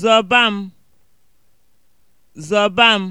zọba m zọba m